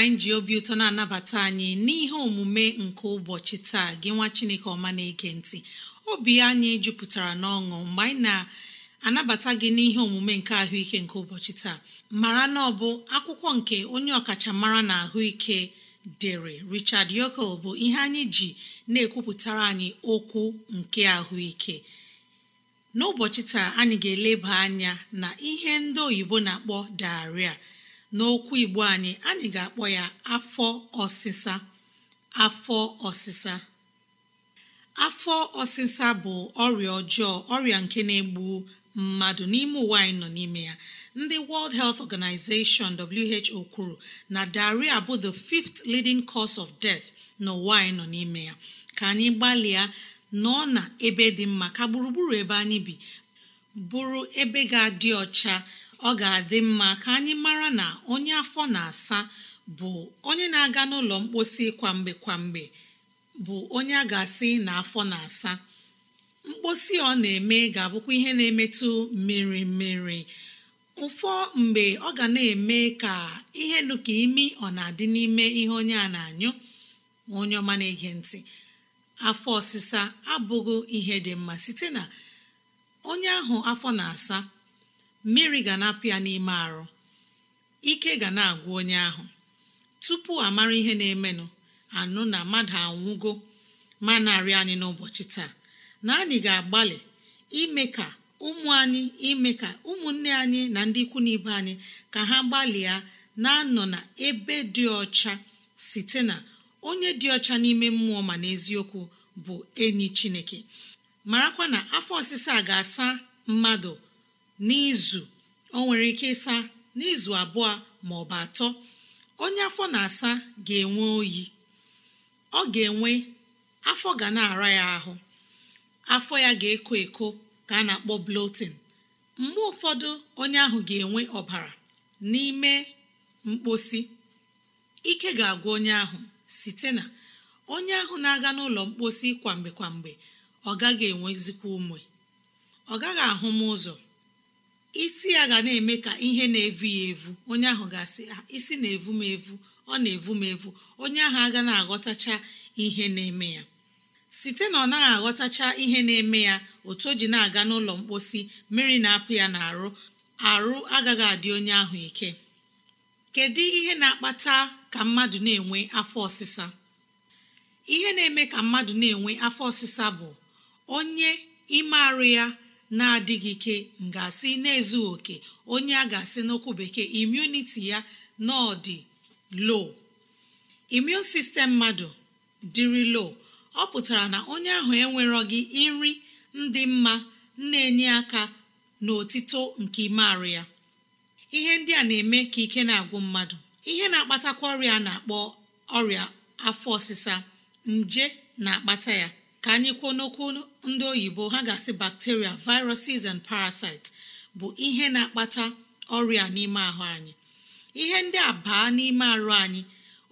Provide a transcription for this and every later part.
anyị ji obi ụtọ na-anabata anyị n'ihe omume nke ụbọchị taa gị nwa chineke ọma na-ege ntị obi anyị jupụtara n'ọṅụ mgbe anyị na-anabata gị n'ihe omume nke ahụike nke ụbọchị taa mara na ọ bụ akwụkwọ nke onye ọkachamara na ahụike dere Richard Yokel bụ ihe anyị ji na-ekwupụtara anyị okwu nke ahụike n'ụbọchị taa anyị ga-eleba anya na ihe ndị oyibo na-akpọ daria n'okwu igbo anyị anyị ga-akpọ ya afọ ọsịsa afọ ọsịsa afọ ọsịsa bụ ọrịa ọjọọ ọrịa nke na-egbu mmadụ n'ime ụwa anyị nọ n'ime ya ndị World Health Organization WHO kwuru na diarrhea bụ the fifth leading cause of death n'ụwa anyị nọ n'ime ya ka anyị gbalịa nọ na ebe dị mma ka gburugburu ebe anyị bi bụrụ ebe ga-adị ọcha ọ ga-adị mma ka anyị mara na onye afọ na-asa bụ onye na-aga n'ụlọ mkposi kwamgbe kwamgbe bụ onye a ga-asị na afọ na-asa mkposi ọ na-eme ga-abụkwa ihe na-emetụ mmiri mmiri ụfọ mgbe ọ ga na-eme ka ihe dịka imi ọ na-adị n'ime ihe onye a na-anyụ onye ọma na-ege ntị afọ ọsịsa abụghị ihe dị mma site na onye ahụ afọ na-asa mmiri ga na-apụ ya n'ime arụ ike ga na-agwụ onye ahụ tupu amara ihe na-emenụ anụ na mmadụ anwụgo ma narị anyị n'ụbọchị taa na anyị ga-agbalị ime ka ụmụ anyị ime ka ụmụnne anyị na ndị ikwu na ibe anyị ka ha gbalịa na-anọ na ebe dị ọcha site na onye dị ọcha n'ime mmụọ ma n'eziokwu bụ enyi chineke marakwa na afọ ọsịsa ga-asa mmadụ n'izu o nwere ike ịsa n'izu abụọ ma ọ bụ atọ onye afọ na-asa ga-enwe oyi ọ ga-enwe afọ ga na-ara ya ahụ afọ ya ga-eko eko ka a na-akpọ blotin mgbe ụfọdụ onye ahụ ga-enwe ọbara n'ime mkposi ike ga-agwa onye ahụ site na onye ahụ na-aga n'ụlọ mkposi kwamgbe kwamgbe ọ gaghị enwezikwa ume ọ gaghị ahụ m ụzọ isi ya ga na-eme ka ihe na-evu ya evu onye ahụ ga-asị ah, isi na-evu m evu ọ na-evu m evu onye ahụ aga na-aghọtacha ihe na-eme ya site na ọ naghị aghọtacha ihe na-eme ya otu o ji na-aga n'ụlọ mposi mmiri na-apụ ya n'arụ arụ agaghị adị onye ahụ ike kedu ihe na-akpata ka mmadụ na-enwe afọ ọsịsa ihe na-eme ka mmadụ na-enwe afọ ọsịsa bụ onye ime arụ ya na-adịghị ike ngasị n'ezu na-ezughị oke onye a ga-asị n'okwu bekee imuniti ya na ọ dị low imun sistem mmadụ dịrị low ọ pụtara na onye ahụ enwerọghị nri ndị mma na-enye aka n'otito nke ime ya ihe ndị a na-eme ka ike na-agwụ mmadụ ihe na-akpatakwa ọrịa na-akpọ ọrịa afọ ọsịsa nje na-akpata ya ka anyị kwuo n'okwu ndị oyibo ha ga-asị bacteria viruses and parasites bụ ihe na-akpata ọrịa n'ime ahụ anyị ihe ndị a baa n'ime arụ anyị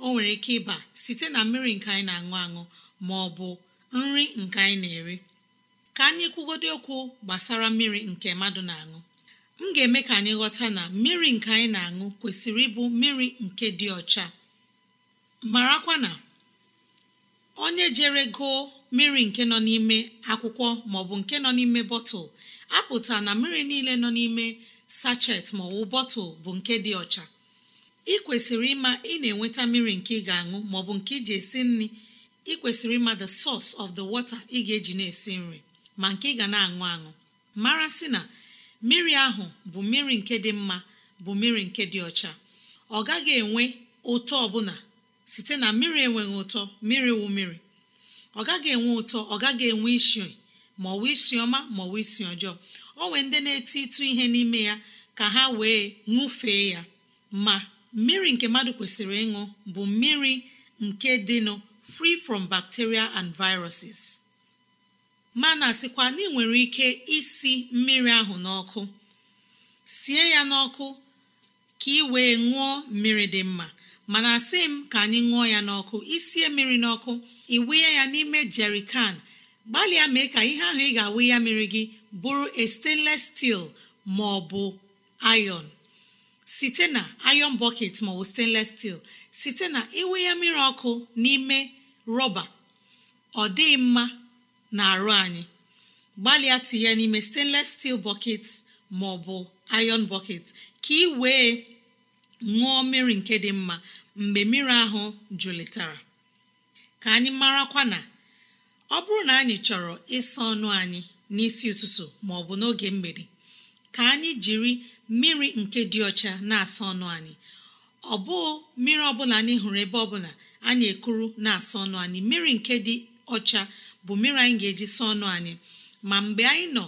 o nwere ike ịba site na mmiri nke anyị na-aṅụ aṅụ ma ọ bụ nri nke anyị na-eri ka anyị kwugodo okwu gbasara mmiri nke mmadụ na-aṅụ m ga-eme ka anyị ghọta na mmiri nke anyị na-aṅụ kwesịrị ịbụ mmiri nke dị ọcha marakwa na onye jere goo mmiri nke nọ n'ime akwụkwọ maọbụ nke nọ n'ime bọtụl apụta na mmiri niile nọ n'ime sachet maọbụ bọtụl bụ nke dị ọcha ị kwesịrị ịma ị na-enweta mmiri nke ị ga-aṅụ maọbụ nke iji esi nri ị kwesịrị ịma the source of the water ị ga-eji na-esi nri ma nke ị ga na-aṅụ aṅụ mara sị na mmiri ahụ bụ mmiri nke dị mma bụ mmiri nke dị ọcha ọ gaghị enwe ụtọ ọbụla site na mmiri enweghị ụtọ mmiri wụ mmiri ọ gaghị enwe ụtọ ọ gaghị enwe isi ma wee isi ọma ma wee isi ọjọọ o nwee ndị na-eti ịtụ ihe n'ime ya ka ha wee ṅụfee ya ma mmiri nke mmadụ kwesịrị ịṅụ bụ mmiri nke dịnụ free from bacteria and viruses ma na-asịkwa na ị nwere ike isi mmiri ahụ n'ọkụ sie ya n'ọkụ ka ị wee ṅụọ mmiri dị mma mana asị m ka anyị ṅụọ ya n'ọkụ isie mmiri n'ọkụ ịwụnye ya n'ime jerikan gbalịa mee ka ihe ahụ ị ga-awụ ya mmiri gị bụrụ a stainless steel ma ọ bụ iron site na iron bucket ma ọ stainless steel site na iwe ya mmiri ọkụ n'ime rọba ọ dịghị mma na arụ anyị gbalịa tinye n'ime stainless steel bucket maọbụ iron bucket ka ị wee ṅụọ mmiri nke dị mma mgbe mmiri ahụ jụlitara ka anyị marakwa na ọ bụrụ na anyị chọrọ ịsa ọnụ anyị n'isi ụtụtụ ma ọ bụ n'oge mgbede ka anyị jiri mmiri nke dị ọcha na-asa ọnụ anyị ọ bụ mmiri ọbụla anyị hụrụ ebe ọbụla anyị ekuru na-asa ọnụ anyị mmiri nke dị ọcha bụ mmiri anyị ga-eji saa ọnụ anyị ma mgbe anyị nọ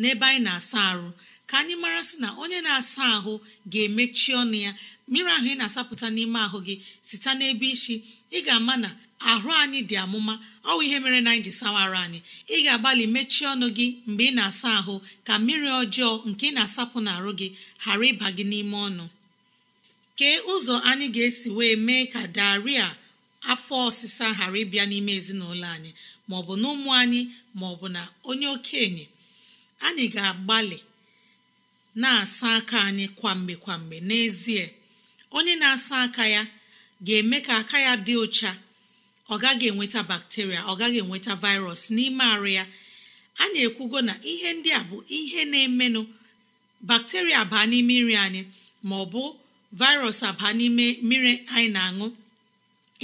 n'ebe anyị na-asa arụ ka anyị mara sị na onye na-asa ahụ ga-emechi ọnụ ya mmiri ahụ ị na-asapụta n'ime ahụ gị site n'ebe isi ị ga-ama na ahụ anyị dị amụma ọ bụ ihe mere na anyị ji sawara anyị ị ga-agbalị mechie ọnụ gị mgbe ị na-asa ahụ ka mmiri ọjọọ nke ị na-asapụ n'arụ gị ghara ịba gị n'ime ọnụ kee ụzọ anyị ga-esi wee mee ka daria afọ ọsịsa ghara ịbịa n'ime ezinụlọ anyị maọbụ na ụmụ anyị maọbụ na onye okenye anyị ga-agbalị na-asa aka anyị kwamgbe kwamgbe n'ezie onye na-asa aka ya ga-eme ka aka ya dị ụcha ọ gaghị enweta bakteria ọ gaghị enweta virus n'ime arụ ya a na ekwugo na ihe ndị a bụ ihe na-emenụ bakteria baa n'ime nri anyị ma ọ bụ virus abaa n'ime mmiri anyị na-aṅụ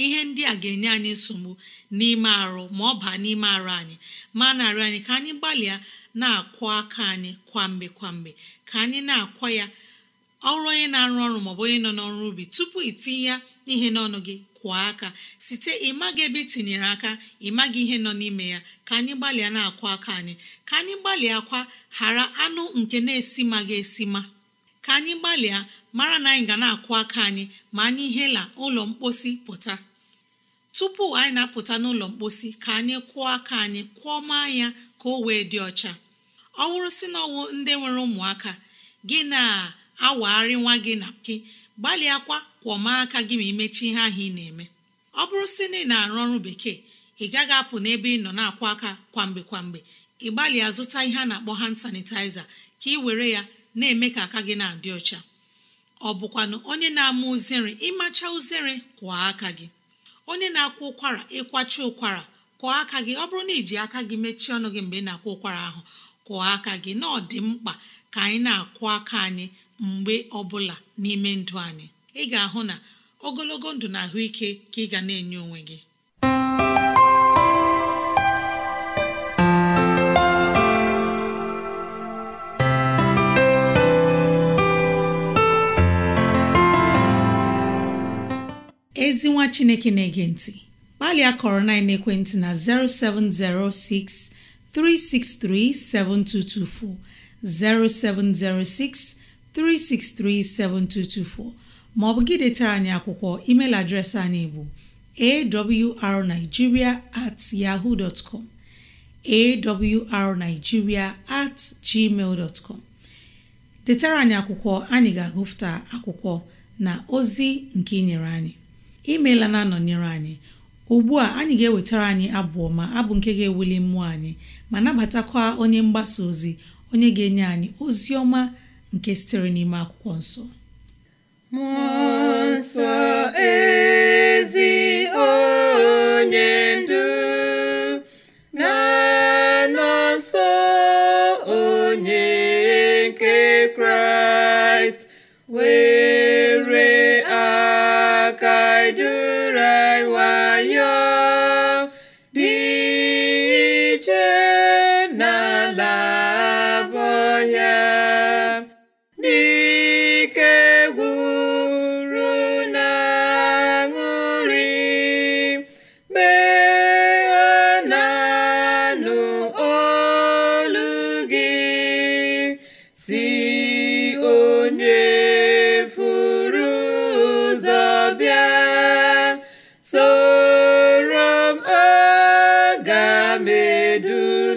ihe ndị a ga-enye anyị nsogbu n'ime arụ ma ọ baa n'ime arụ anyị ma narị anyị ka anyị gbalịa na akwụ aka anyị kwamgbe kwamgbe ka anyị na-akwa ya ọrụ onye na-arụ ọrụ maọbụ onye nọ n'ọrụ ubi tupu itinye ya ihe n'ọnụ gị kwa aka site ịmaghị ebe itinyere tinyere aka ịmaghị ihe nọ n'ime ya ka anyị gbalịa na akwụ aka anyị ka anyị gbalịa kwa ghara anụ nke na esi ga-esi ma. ka anyị gbalịa mara na anyị ga na-akwụ aka anyị ma anyị hela ụlọ mposi pụta tupu anyị na-apụta n'ụlọ mposi ka anyị kwụọ aka anyị maa ya ka o wee dị ọcha ọ bụrụ si na ọwụ ndị nwere ụmụaka gị na-awagharị nwa gị na gị gbalịakwa kwọma aka gị ma imechi ihe ahụ ị na-eme ọ bụrụ si na ị na-arụ ọrụ bekee ị gaghị apụ n'ebe ị nọ na-akwụ aka kwamgbe kwamgbe ị gbalịa zụta ihe a na-akpọ hand sanitizer ka ị were ya na-eme ka aka gị na-adị ọcha ọ bụkwanụ onye na-ama uzere ịmacha uzere kwụọ aka gị onye na-akwa ụkwara ịkwacha ụkwara kwụọ aka gị ọ bụrụ na iji aka gị mechie ọnụ gị mgbe ị na-akwa ụkwara ahụ kwụọ aka gị na ọ dị mkpa ka anyị na-akwụ aka anyị mgbe ọbụla n'ime ndụ anyị ị ga-ahụ na ogologo ndụ na ahụike ka ị ga na-enye onwe gị ezi nwa chineke na-ege ntị gbalịa kọrọ na ekwentị na 0706 363 7224 0706 363 7224 maọbụ gị detara anyị akwụkwọ email adreesị anyị bụ awrnigeria at yahoo com awrnigeria at gmail com detara anyị akwụkwọ anyị ga-agụpụta akwụkwọ na ozi nke ị nyere anyị imeela na-anọnyere anyị ugbu a anyị ga-ewetara anyị abụ ọma abụ nke ga-ewuli mmụọ anyị ma nabatakwa onye mgbasa ozi onye ga-enye anyị ozi ọma nke sitere n'ime akwụkwọ nsọ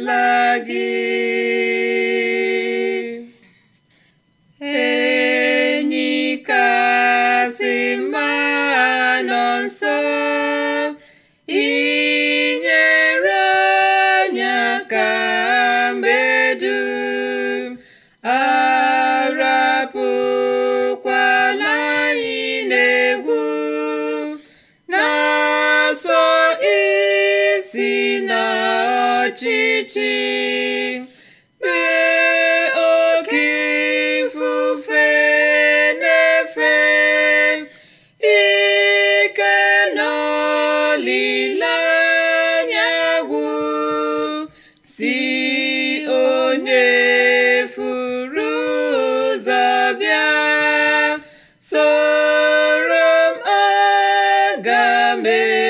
la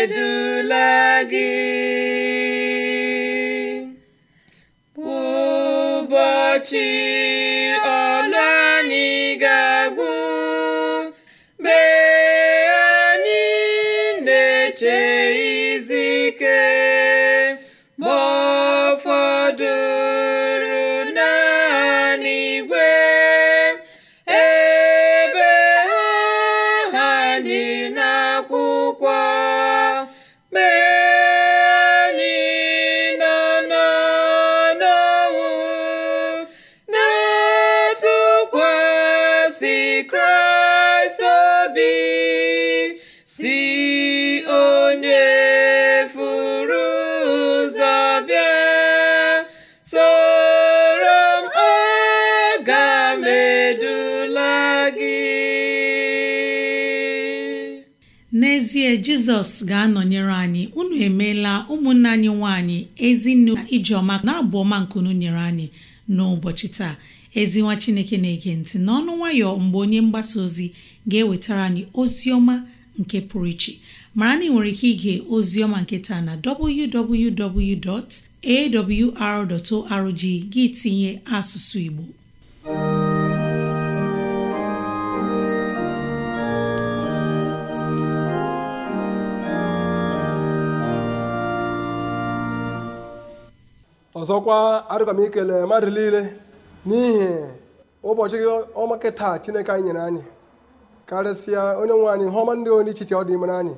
edula gị ụbọchị n'ezie jizọs ga-anọnyere anyị unu emeela ụmụnne anyị nwanyị ezinụlọ na ijeọma na-abụ ọma nkunu nyere anyị n'ụbọchị taa ezi nwa chineke na-ege ntị n'ọnụ nwayọ mgbe onye mgbasa ozi ga-ewetara anyị ozi ọma nke pụrụ iche mara na ị nwere ike ige ozi ọma nke taa na www.awr.org gị tinye asụsụ igbo ọzọkwa adịkwa m ikele mmadụ niile n'ihi ụbọchị ọmaka taa chineke anyị nyere anyị karịsịa onye nwe anyị ihe ndị onye ichiche ọ dị anyị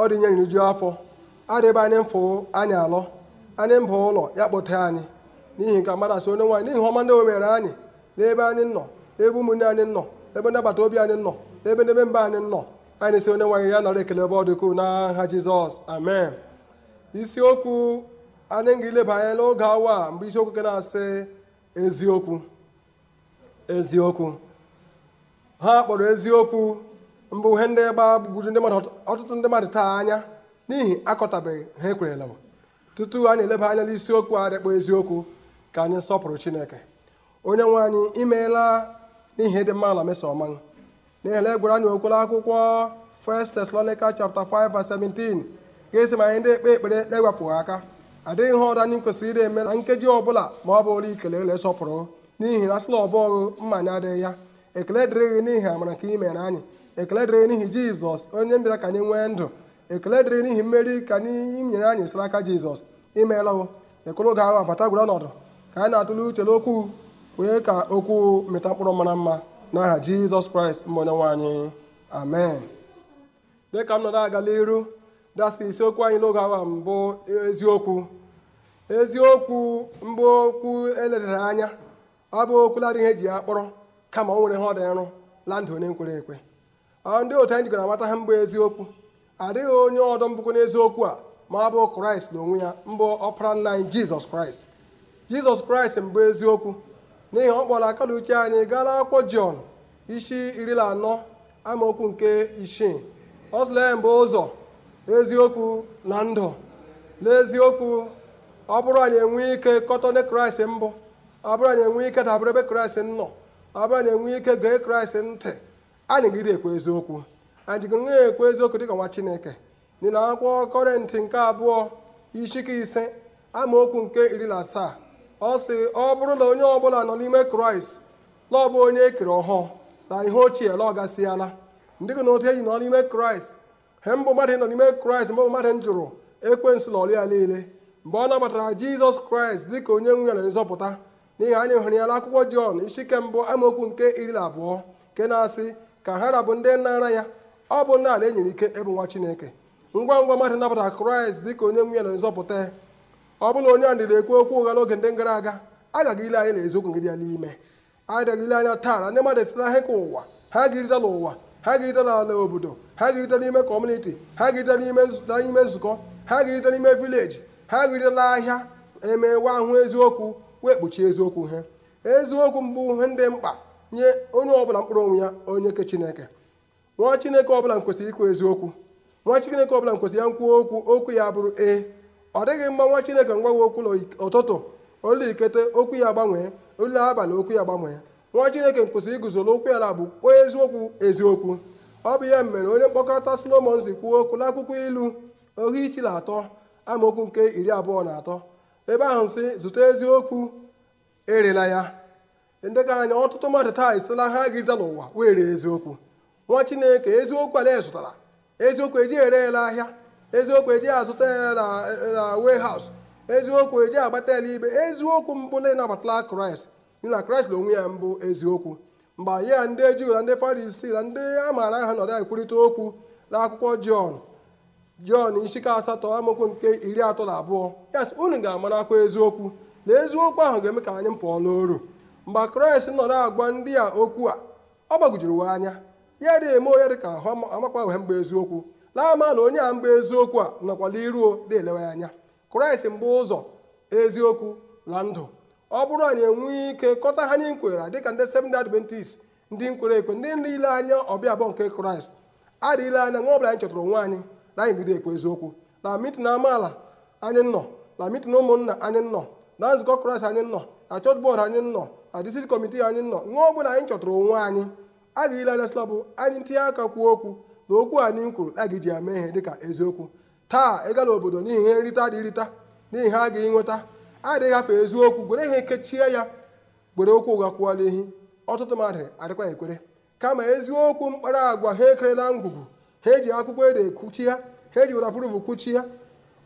ọ dị nyere nju afọ adị anyị mfụ anyị alọ anyị mba ụlọ ya kpọta anyị n'ihi nke mmadụ asị onye nwe anyị n'ihi ọma ndị o mere anyị n'ebe anyị nọ ebe ụmụnne anyị nọ ebe ndị agbata obi anyị nọ ebe n'ebe mba anyị nọ anyị si onye nwe anyị ya nara ekele ebe ọ dịkwu n'aha Jizọs amen isiokwu anyị ga-eleba anya n'oge awa mgbe isiokwu nke na-asị eziokwu eziokwu ha kpọrọ eziokwu mbụ ihe ndị gbagburu ndị mmadụ ọtụtụ ndị mmadụ taa anya n'ihi akọtabeghị ha ekwerela tutu anyị eleba anya n'isiokwu a dịkpọ eziokwu ka anyị sọpụrụ chineke onye nwe anyị imeela n'ihi dị mma na mesoma n'ihi na egwere anyị okwere akwụkwọ 1 Thessalonica chapter 5 verse 17 ga-esi ma anyị ndị ekpe ekpere na-ewepụghị aka adịghị ihe ọdụ anyị kwesịrị ire eme na nkeji ọbụla ma ọ bụ ụlọ ikele ele sọpụrụ n'ihi na asịla ọbọghụ mma anyị adịghị ya ekele dịrị n'ihi amara ka ị anyị ekele dịrị n'ihi jizọs onye mbịara ka anyị nwee ndụ ekele dịrị n'ihi mmeri ka anyị nyere anyị sara aka jizọs imeela o ekoro oge ahụ abata gwara ọnọdụ ka anyị na-atụle uche n'okwu wee ka okwu mịta mkpụrụ mara mma n'aha jizọs kraịst mbụ onye nwe anyị amen dịka m nọrọ agala iru dasị isiokwu anyị n'oge awa mbụ um, eziokwu eziokwu mbụ okwu eledara anya ọ bụ okwuladị ihe eji ya kpọrọ kama o nwere ihe ọ nrụ la ndụ onye nkwere ekwe ndị otu anyị jikọrọ amata ha mbụ eziokwu adịghị onye ọdọ mbụkwa n'eziokwu a ma ọ bụ kraịst n'onwe ya mbụ ọpara nna anyị jizọs kraịst jizọs kraịst mbụ eziokwu n'ihi ọ kpọrọ aka na uche anyị gaa n'akwụkwọ jọn isi iri na anọ amaokwu nke isii ọ sịla mbụ ụzọ eziokwu na ndụ n'eziokwu ọ bụrụ anyị enwe ike kọtọne kraịst mbụ ọ bụrụ anyị enwe ike dabere ebe kraịst nọ ọ bụrụ anyị enwe ike gee kraịst ntị anyị gide ekwe eziokwu anyị jigoro ekwe eziokwu dịka nwa chineke n'ihi na akwụkwọ kọrịntị nke abụọ ishike ise amaokwu nke iri na asaa ọ sị ọ bụrụ na onye ọbụla nọ n'ime kraịst na ọ bụ onye ekere ọhụụ na ihe ochie na ọ gasịala ndị gị na otu eji nọ n'ime kraịst he mbụ mmadụ nọ n'ime kraịst mgbe mmadụ jụrụ ekwensu na ya niile mgbe ọ nabatara jizọs kraịst dị ka onye nwe na nzọpụta n'ihi anyị hụrụ ya n'akwụkwọ jọn isi ike mbụ amaokwu nke iri na abụọ nke na-asị ka ha rabụ bụ ndị nnara ya ọ bụ n'ala ala enyere ike ịbụ nwa chineke ngwa ngwa mmadụ nabatara kraịst dị ka onye nwe ya na nzọpụta ọ bụla onye a ndịda ekwu okwu ụgha n'oge ndị gara aga aga ile anya na eziokwu gị ya n'ime adịghị ile anya taa na ndị mmadụ esitela ihe ka ụwa ha ga-erite n'ụwa ha ga-erite n'ala obodo ha ga-erite n'ime kọmuniti ha ga-erite n'ime nzukọ ha ga-erite n'ime vileji ha ga-eritela ahịa emewe ahụ eziokwu wee kpuchie eziokwu ha eziokwu mbụ ihe ndị mkpa nye onye ọbụla mkpụrụ onwe ya onye ke chineke nwa chineke ọbụla kwesịrị ikwu eziokwu nwa chineke ọbụla kwesịrị ya nkwuo okwu okwu ya bụrụ ee ọ dịghị mma nwa chineke ngwawe okwu n'ụtụtụ ụlọ ikete okwu ya gbanwee ụlọ abalị okwu ya gbanwee nwa chineke kwụsịrị iguzo n'okwu ala bụ onye eziokwu eziokwu ọ bụ ihe mere onye mkpọkọta solomon kwuo okwu n'akwụkwọ ilu ohu isi na atọ amaokwu nke iri abụọ na atọ ebe ahụ si zụta eziokwu erela ya ndị ka anya ọtụtụ mmadụ taa esitela ha agịrịta n'ụwa wee ree eziokwu nwa chineke eziokwu ala zụtara eziokwu eji ere ele ahịa eziokwu eji azụta ya na haus eziokwu eji agbata ele ibe eziokwu mbụ na ịnabatala kraịst na kraịst na onwe ya mbụ eziokwu mgbe anyị ya ndị juu na ndị farisii na ndị a maara aha nọrọ ekwurịta okwu n'akwụkwọ jọn jọn isi asatọ amaokwu nke iri atọ na abụọ ya sị unu ga-amarakwa eziokwu na eziokwu ahụ ga-eme ka anyị pụọ n'oru mgbe kraịst na agwa ndị a okwu a ọ gbagwujuru we anya ya dị eme onye dị ka ahụ amakwa wee mgbe eziokwu na-ama na onye a mgbe eziokwu a nọkwala iruo dị elewe anya kraịst mbụ ụzọ eziokwu na ndụ ọ bụrụ anyị enwee ike kọta ha nye nkwera dịka ndị Seventh Adventist ndị nkwere ekwe ndị nile anya ọbịa abụọ nke kraịst adịghịle anya nwa ọbụla anyị chọtara onwe anyị na anyị bido ekwe eziokwu na mitin amaala anyị nọ na mitin ụmụnna anyị nọ na nzukọ kraịst anyị nọ na chọọchị bọọdụ anyị nọ na district kọmitii anyị nọ nwa ọbụla anyị chọtara onwe anyị adịghịle anya slabụ anyị ntinye aka kwuo okwu na okwu anyị nkwuru a gị ji ya mee ihe dịka eziokwu taa ịga n'obodo n'ihi ihe nrita dị irita n'ihi ha agaghị nweta adịghị afọ eziokwu gwere ihe kechie ya gwere okwu ụgha kwụọla ihe ọtụtụ mmadụ adịkwa ekwere kama eziokwu mkpara agwa ha ekerela ngwugwu ha eji akwụkwọ ede ekwuchi ya ha eji werapuruvu kwuchi ya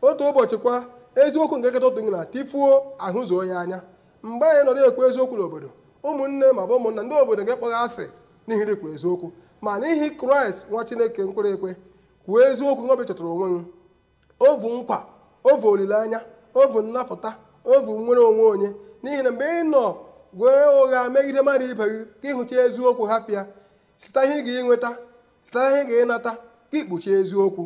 otu ụbọchị kwa eziokwu nke nketa otu na tifuo ahụzuo ya anya mgbe anyị nọrọ ekwu eziokwu n'obodo ụmụnne ma bụ ụmụnna ndị obodo nke kpọghị asị n'ihi na eziokwu ma n'ihi kraịst nwa chineke nkwere ekwe kwuo eziokwu n'obi chọtara onwe m ovu nkwa ovu olileanya ovu nnapụta ovu nwere onwe onye n'ihi na mgbe ị nọ gwere ụgha megide mmadụ ibe gị ka ịhụcha eziokwu hapịa site ihe ga-enweta site ihe ị ga-ịnata ka ikpuchi eziokwu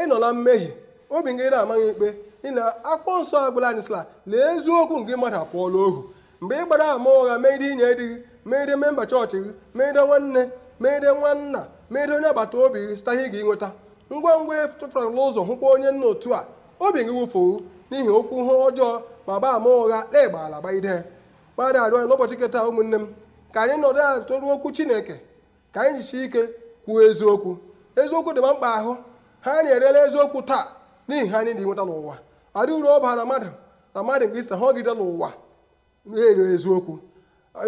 ị na mmehie obi gị na-amaghị ikpe ị akpọ nsọ agbụla anyị sịla lee eziokwu nke mmadụ apụọla ohu mgbe ị gbara ama ụgha megide inye di gị megide memba chọọchị gị megide nwanne megide nwanna megide onye agbata obi gị site ihe ị ga-enweta ngwa ngwa ịtụfụrụla ụzọ hụkwa onye nna otu a obi gị wụfuo n'ihi okwu ha ọjọọ ma gbaa ama ụgha na ala gbaide mmadụ arịọ n'ụbọchị nke taa ụmụnne m ka anyị nọdụ ala tụrụ okwu chineke ka anyị jisi ike kwuo eziokwu eziokwu dị ma mkpa ahụ ha na-erela eziokwu taa n'ihi ha anyị dị nweta n'ụwa adị uru ọ bara mmadụ na mmadụ nke isi ha n'ụwa na-ere eziokwu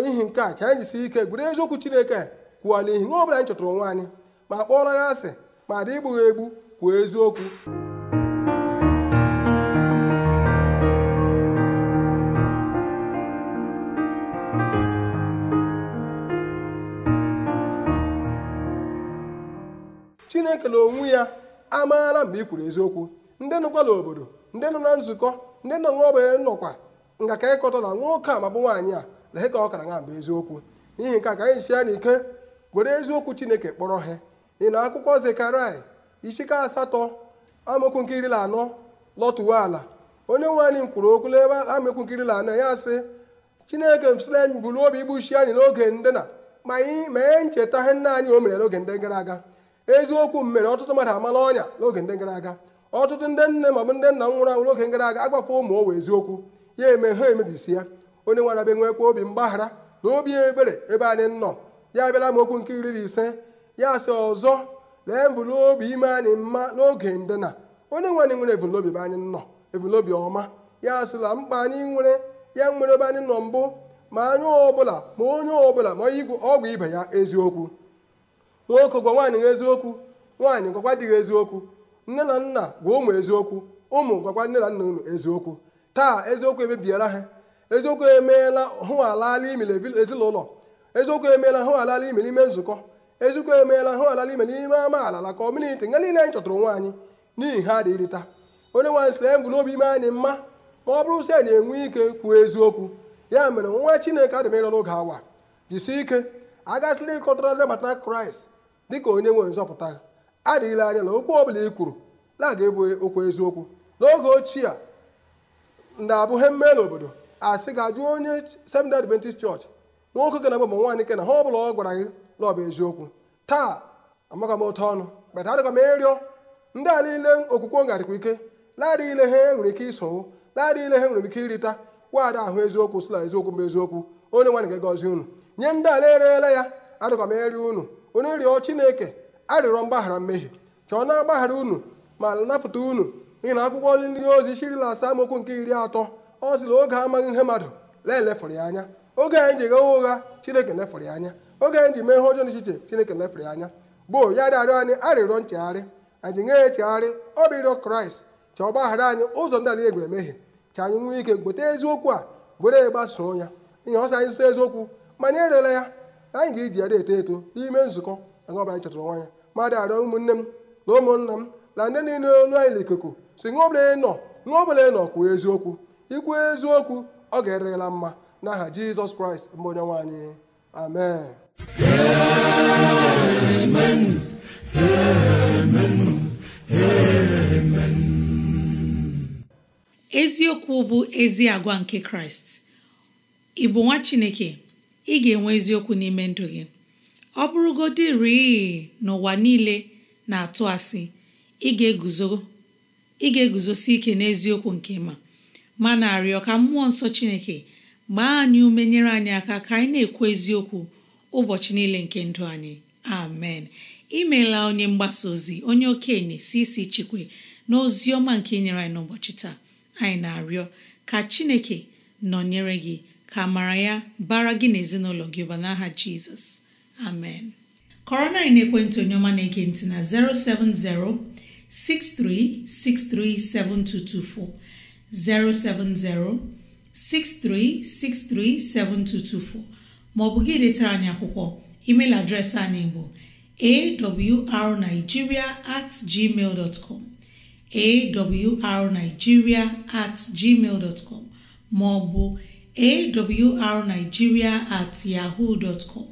ihi nke a ka anyị jisie ike gwere eziokwu chineke kwuo n'ihi ihe ọ anyị chọtara nwa anyị ma kpọrọ ya asị ma dị igbughị egbu kwuo eziokwu chineke na-ekele onwe ya amaara mgbe ị kwuru eziokwu ndị nọkwala obodo ndị nọ na nzukọ ndị nọ n'ọgbe nọkwa nga ka ịkọta na nwoke a ma bụ nwaanyị a lehe ka ọ kara na mgbe eziokwu n'ihi nke a ka anyị si ya n'ike were eziokwu chineke kpọrọ ha ị na akwụkwọ zekarai isika asatọ amaokwu anọ lọtụwa ala onye nwe anyị kwuru okwu n'ebe amaokwu anọ ya sị chineke msila anyị bụrụ obi igbuchi anyị n'oge ndị na ma anyị mee ncheta ihe nna anyị o mere n'oge ndị gara aga eziokwu mere ọtụtụ mmadụ amala ọnya n'oge ndị gara aga ọtụtụ ndị nne ma ọ bụ ndị nna nwụrụ anwụ n'oge gara aga agbafe ụmụ owe eziokwu ya eme ha emebisi ya onye nwere abịa nwekwa obi mgbaghara na obi ebere ebe anyị nọ ya abịala m okwu nke iri na ise ya asị ọzọ lee mvụlobi ime anyị mma n'oge ndịna onye nwe anyị nwere evụlobi ebe anyị nọ evụlobi ọma ya sịla mkpa anyị nwere ya nwere ebe anyị nọ mbụ ma anyị ọbụla ma onye ọbụla ma igwe ọgwụ ibe ya eziokwu nwoke gwa nwaanyị eziokwu nwaanyị gwakwa dịghị eziokwu nne na nna gwa ụmụ eziokwu ụmụ gwakwa nne na nna unu eziokwu taa eziokwu emebiela ha eziokwu emeela hụ alala ime ezinụlọ eziokwu emeela hụ alala ime n'ime nzukọ eziokwu emeela hụ alala ime n'ime ama alala ka nga niile anyị chọtụrụ nwaanyị n'ihi ha dị onye nwaanyị sịrị anyị obi ime anyị mma ma ọ bụrụ si anyị enwe ike kwuo eziokwu ya mere nwa chineke adịmerọrọ oge awa jisi ike agasịla ịkọtara ndị bata kraịst dịka onye nwere nzọpụta adịghịla anya na okwu ọbụla ị kwuru na-aga ebu okwu eziokwu n'oge ochie a ndị abụghị ha obodo a asị ga-ajụ onye Seventh-day Adventist Church nwoke ke na ma nwaanyị ke na ha ọbụla ọ gwara gị na ọ bụ eziokwu taa amaka m otu ọnụ kpeta adịkwa m ịrịọ ndị a niile okwukwe ngarịkwa ike ladị ile ha enwere ike iso ladị ile ha nwere ike irita waada ahụ eziokwu sila eziokwu mba eziokwu onye nwaanyị ga-agọzi unu nye ndị a na-erela ya adịkwa m ịrịọ unu onye rịọ chineke arịrọ mgbaghara mmehie ka ọ na-agbaghara unu ma napụta unu n'ihi na akwụkwọ nri ndị ozi shirila asaa amaokwu nke iri atọ ọ sịrị oge amaghị ihe mmadụ lee elefụrụ ya anya oge anyị ji gha ụgha chineke lefụrụ ya anya oge anyị ji mee ihe ọjọọ n'echiche chineke lefụrụ ya anya gboo ya rịarịọ anyị arịrịọ nchegharị anyị nye ya echegharị ọ bụ ịrịọ kraịst ka ọ gbaghara anyị ụzọ ndị anyị egwere mehie ka anyị nwee ike gweta eziokwu a were gbasoo ya ihe ọsọ anyị zụta eziokwu ma anyị erela ya anyị ga-eji ya eto eto n'ime nzukọ anyị ọbụla anyị chọtara nwanya mmadụ arịọ ụmụnne m na ụmụnna m na ndị niile olu anyị n'ikuku si ṅụọ ọbụla nọ ṅụọ ọbụla nọ kwuo eziokwu ikwu eziokwu ọ ga-erela mma n'aha jizọs kraịst mbụ onye nwaanyị amen amen eziokwu bụ ezi agwa nke kraịst ị bụ nwa chineke ị ga-enwe eziokwu n'ime ndụ gị ọ bụrụgodịrị n'ụwa niile na-atụ asị ị ga-eguzosi ike n'eziokwu nke ma ma na-arịọ ka mmụọ nsọ Chineke gbaa anyị ume nyere anyị aka ka anyị na-ekwu eziokwu ụbọchị niile nke ndụ anyị amen imeela onye mgbasa ozi onye okenye si isi chikwe na ozi ọma nke nyere anyị n'ụbọchị taa anyị na-arịọ ka Chineke nọnyere gị ka amara ya bara gị na ezinụlọ gị ụba n'aha jizọs amen kọrọ na ekwentị onye na-ege na 070 7224, 070 maọbụ gị letara anyị akwụkwọ email adreesị anyị bụ arigiria atgmal gmail dot com at gmail maọbụ awrnigeria at yahoo dot com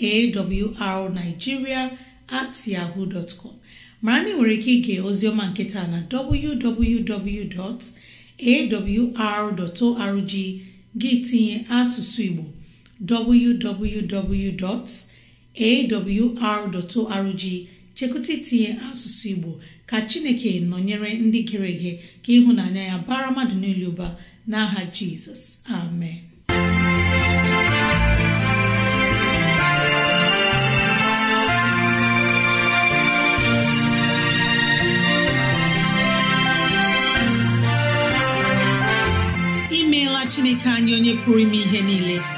awrnigeria at yahoo dot com mara na nwere ike ige ozioma nketa na www.awr.org gị tinye asụsụ igbo arorg chekụta itinye asụsụ igbo ka chineke nọnyere ndị gere ege ka ịhụnanya ya bara mmadụ niile ụba n'aha jizọs amen imeela chineke anya onye pụrụ ime ihe niile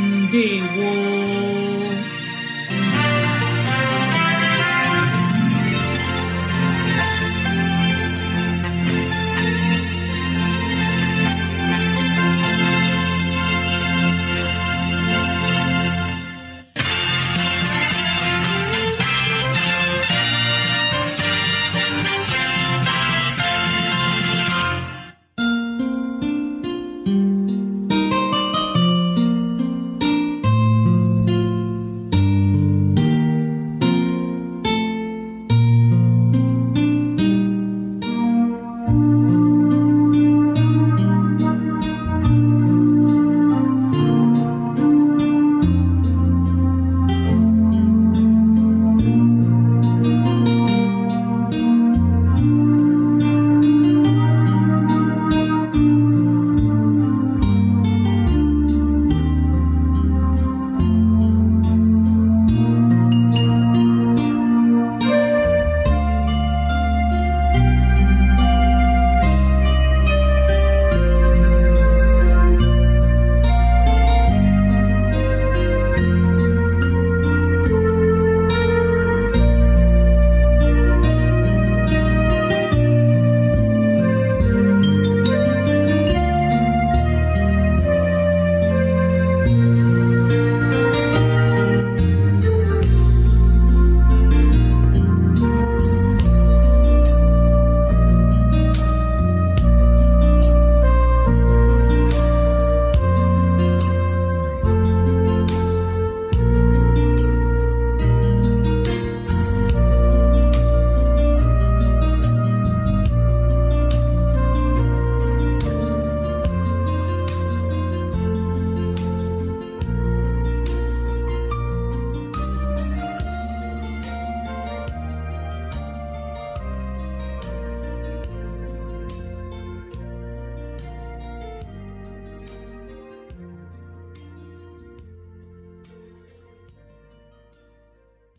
ndewo